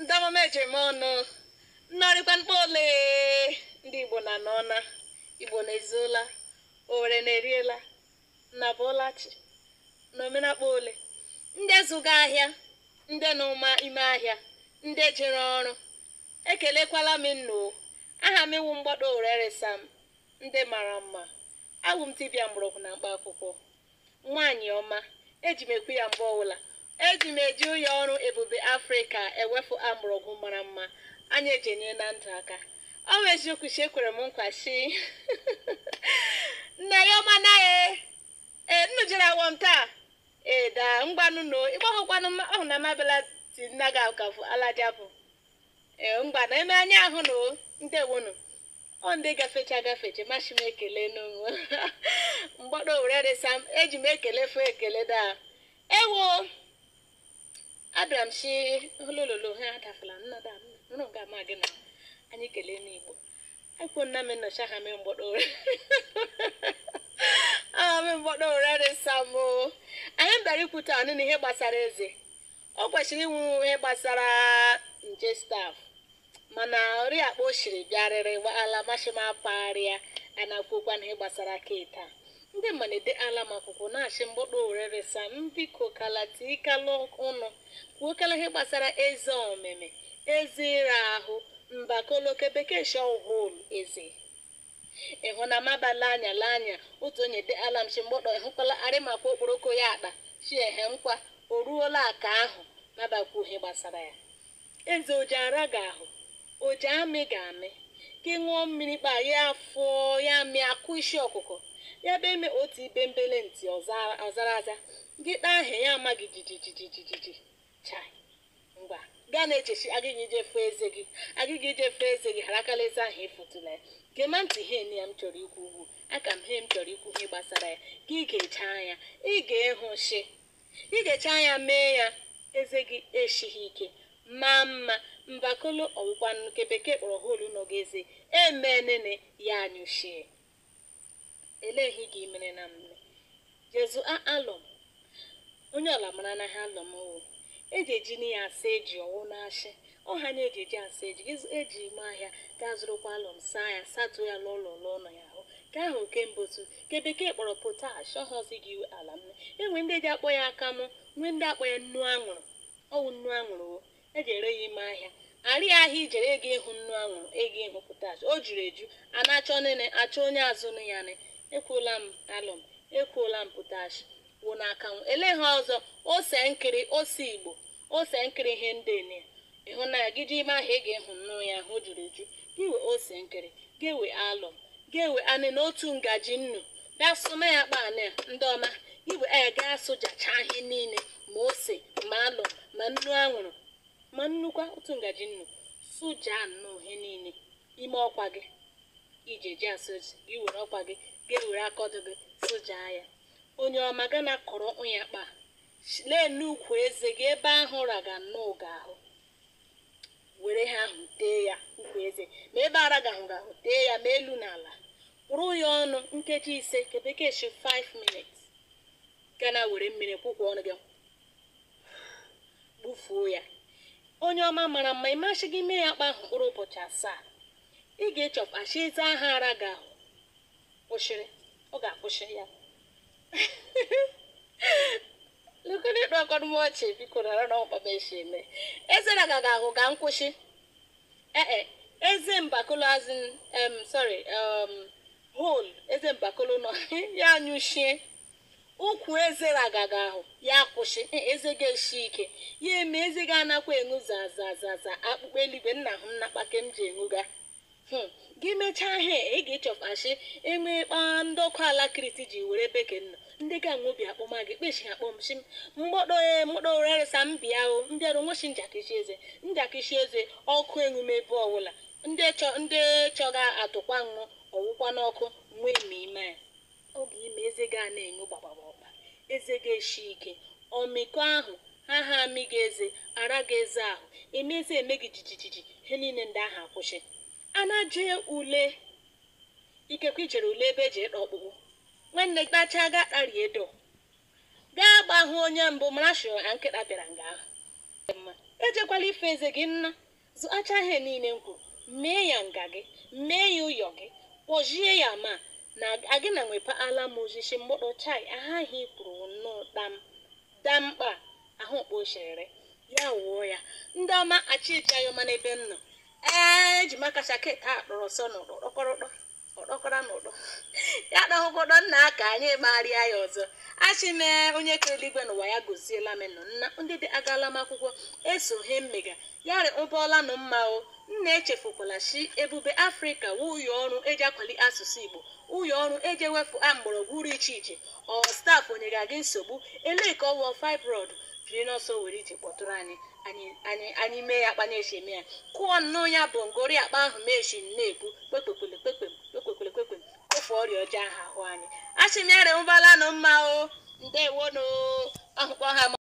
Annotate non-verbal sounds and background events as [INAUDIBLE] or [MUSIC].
ndị amama ọnụ nnarịkwa mkpa ole ndị igbo na n'ọna igbo na-ezuola owere na-eriela na bụlachi na omenakpọ ole ndị zụga ahịa ndị n'ụma ime ahịa ndị jere ọrụ ekelekwala m nnu aha m iwu mgbado oreresa m ndị mara mma abụ m mgbọrọgwụ na mkpa akwụkwọ nwaanyị ọma eji m ekwu ya mgbe ọbụla eji m eji ụlọ ọrụ ebube afrịka ewefu amụrụgwụ mara mma anyị ejenye na ndụ aka ọ bụ eziokwu si ekwere m nkwa si [LAUGHS] nne ya ọma naghị ee nnu jere awọ e, m taa ee daa ngwanụno ịgbahụkwanụ ọhụ na mabela ti nna gị akafụ alajabụ ee mgba na eme anya ahụ na ndewonu ọ ndị gafecha gafecha masị m ekele n'onwe [LAUGHS] mgbado were resam eji m ekele fụ ekele daa ewo abịara m si olololo ha adafala nnada nụrụ ga ama gị na anyị kelee n'igbo akwụkwọ nna m nọcha ha mee mgbọdọ ụra aha mee mgbọdọ ụra dị samo anyị bịara ikwute anụ na ihe gbasara eze ọ kwesịrị inwe ihe gbasara nje staf mana akpa o siri bịarịrị ala mashima parịa a na-akwụkwa na ihe gbasara keta ndị mmalite ala m akwụkwọ na-achị mgbọkpọ owere resa m kalata ịkala ụnụ kwuokala ihe gbasara eze omeme eze ịra ahụ mbakoloke bekee shọhol eze ịhụnamabala anya la anya otu onye de ala m chi mgbọkpọ ịhụkwala arịmakwa okporoko ya akpa chiehe nkwa o ruola aka ahụ ihe gbasara ya eze ara ga-ahụ oji amị ga-amị gị ṅụọ mmiri kpa ya afọ ya mịa akụ isi ọkụkọ ya be eme otu ibe mbele ntị ọzara aza gị taa aha ya amaghị jijijijijiji chai ngwa gaa na-echechi agịghị ijefe eze gị agịghị ijefe eze gị harakala eze ahụ ịfụtụla ya gema ntị ihe enye ya m chọrọ ikwu ugwu aka m he m chọrọ ikwu ihe gbasara ya ka ị ga-eche anya ị ga-ehụ shi ị ga-eche anya mee ya eze gị esighị ike maa mma mbakolo ọwụkwanụ nke bekee kpọrọ holu nọgeze emenene ya anyụchie eleghị gị mere na mme jezu alọm onye ọla mara na ha alọm o eji eji na asa eji ọwụ na-achị ọha na eji eji asa eji eji ime ahịa gaa zụrụkwa alọm saa ya satuo ya n'ụlọ nọ ya ahụ nke ahụ nke mbụ tu nke bekee kpọrọ potash ọhọzi gị ala mme enwe ndị eji akpọ ya aka mụ nwee ndị akpọ ya nnu anwụrụ ọwụ nnu anwụrụ eji ere ya ime ahịa arị ahịa ijere ego ịhụ nnu anwụrụ ego ịhụ pụtash o juru eju a na-achọ achọ onye azụnụ ya ne ekwuola m alụm ekwuola m potash wụ n'aka m ele ha ọzọ ose nkiri ose igbo ose nkiri ihe ndị ne ịhụ na ya ime ahịa ị ga nnu ya ahụ juru eju iwe ose nkiri gewe alụm gewe anị na otu ngaji nnu bịa sụna ya kpa anị ndị ọma igwe a e, ga asụ ihe niile ma ose ma alụm ma nnu anwụrụ ma nnukwu otu ngaji nnu sụja nnọọ ihe niile ime ọkwa gị iji eji gị were ọkwa gị gị were akọdụ gị sụja ya onye ọma ga na kọrọ ụnya kpa lee n'ukwu eze gị ebe ahụ raga nnọọ ga ahụ were ha ahụ tee ya ukwu eze ma ebe ara ga ahụ tee ya ma elu na ala kwụrụ ya ọnụ nkeji ise nke bekee 5 minutes gana were mmiri kwụkwọ ọnụ gị gbufuo ya onye ọma mara mma ị ịmasị gị mee ya kpa ahụ mkpụrụ ụbọchị asaa ị ga-echọpụtachi eze aha ara gị ahụ kwụsịrị ọ ga-akwụsị ya [LAUGHS] lukene ịkpa m ọchị biko nara na ọkpa m eme eze na gaga ahụ ga nkwụsị ee eh, eh, eze mbakolo azụ em sorry hol eze mbakolo nọ [LAUGHS] ya anyụchie ukwu eze ragaga ahụ ya kwụsị e, eze ga-esi ike ya eme eze ga anakwa enwu zazazaza akpụkpọ eluigwe nna hụ nnakpake m ji enwuga hmm. gị mechaa ihe ị ga-echọfashi enwe kpa ndị ọkụ ala kriti ji were bekee nọ ndị ga nwobi akpọma gị kpeshi akpọmshi mgbọdoe mgbọdoreresa mbịa o mbịarụ nweshi njakịshi eze njakịshi eze ọkụ enwume ebe ọbụla ndị chọ ndị chọga atụkwa ọwụkwa n'ọkụ nwee ma ime ya oge ime eze ga na-enyo gbagbagbagba eze gị eshi ike ọmịiko ahụ ha ha amị gị eze ara gị eze ahụ eme eze eme gị jijijiji ihe niile ndị ahụ akwụsị a na ule ikekwe ijere ule ebe eji ịkpa ọkpụkpụ nwanne gị tachaa ga kpari edo gaa gbahụ onye mbụ mara shụrụ nkịta bịara nga ahụ ejekwala ife eze gị nna zụacha ihe niile m kwuru mee ya nga gị mee ya ụyọ gị kpojie ya ma na agịna ala m ozizi mgbọdọ chai ahụ kwuru nnọọ dam damkpa ahụ kpochere ya wuo ya ndị ọma achịcha yọma n'ebe m nọ ee eji m aka shaketi a kpọrọ sọ akọkwara m ya na nna ka anyị marịa ya ọzọ achị mee onye kere eluigwe n'ụwa ya gosiela m nọ nna ndị dị agala m akwụkwọ eso mmega yarị ụbọọla nụ mma o nna echefukwala si ebube afrịka wuye ọrụ eji akwali asụsụ igbo ụyọ ọrụ eji ewepụ a mgbọrọgwụ uru iche iche ọ stafụ onyere gị nsogbu elee ka ọwọ fibroid jiri n'ọsọ were iche kpọtụrụ anyị anyị anyị mee ya akpa na-eche eme ya kụọ nnọọ ya bụ ngori akpa ahụ mechi na-ekwu kpekpekpe ifufe ọrịa ọjọọ ahụ ahụ anyị a sị m ya remụbala nụ mma o ndewonụ ọhụkpọ ha